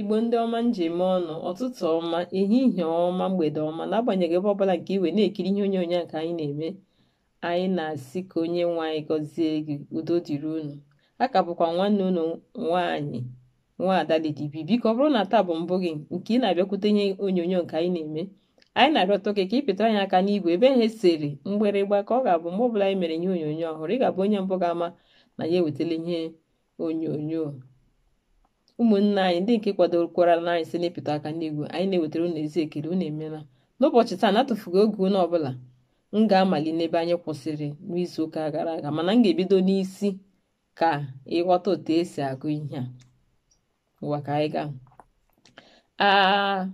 igbo ndị ọma njem ọnụ ọtụtụ ọma ehihie ọma mgbede ọma n'agbanyeghị ebe ọbụla nke iwe na-ekiri ihe onyonyo nke anyị na-eme anyị na-asị ka onye nwe anyị gọzie gị udo dịrị unu a ka bụkwa nwanne unu nwaanyị nwa ada Lady B biko ọ bụrụ na taa bụ mbụ gị nke ị na-abịakwute ihe onyonyo nke anyị na-eme anyị na-arịọta oke ka ịpịta anyị aka n'igwe ebe ihe esere mgbịrịgba ka ọ ga-abụ mgbe ọbụla anyị mere ihe onyonyo ọhụrụ ị ga-abụ onye mbụ ga-ama na ya ewetala ihe onyonyo ụmụnne anyị ndị nke kwadokwara anyị site n'ịpụta aka n'igwe anyị na-ewetara unu ezi ekele unu emeela n'ụbọchị taa na oge unu ọbụla m ga-amali n'ebe anyị kwụsịrị n'izu ụka gara aga mana m ga-ebido n'isi ka ịghọta otu esi agụ ihe a ụwa ka anyị gaa a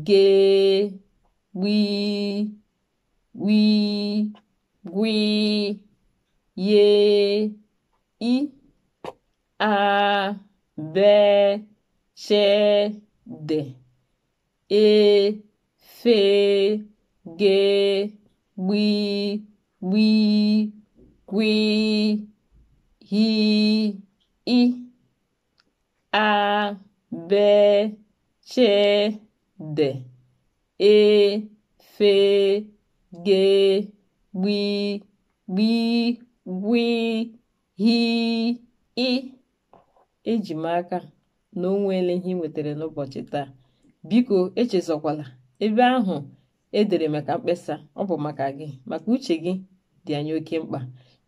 be wí wí ye i a bẹ ṣẹ dẹ e fè gé gbí gbí gbí hi i a bẹ ṣẹ dẹ e fè. g, gb, gb, gb, ị. Eji m aka na onwe ele ihe ị nwetara n'ụbọchị taa. Biko echezokwala ebe ahụ edere maka mkpesa ọ bụ maka gị maka uche gị dị anyị oke mkpa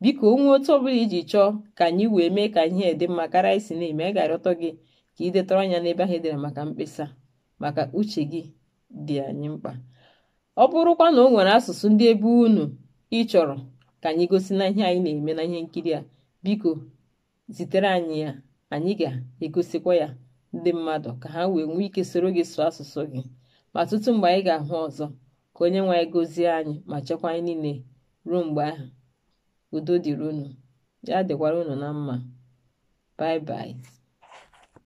biko onwe otu ọbụla iji chọọ ka anyị wee mee ka ihe dị mma karịa isi na-eme anyị ga-arịọtọ gị ka ị detara anya n'ebe ahụ edere maka mkpesa maka uche gị dị anyị mkpa ọ bụrụkwa na o nwere asụsụ ndị ebe unu ị chọrọ ka anyị gosi na ihe anyị na-eme na ihe nkiri a biko zitere anyị ya anyị ga-egosikwa ya ndị mmadụ ka ha wee nwee ike soro gị sụọ asụsụ gị ma tutu mgbe anyị ga-ahụ ọzọ ka onye nwe anyị gozie anyị ma chekwa anyị niile ruo mgbe ahụ udo dịrị unu ya dịkwara unu na mma bye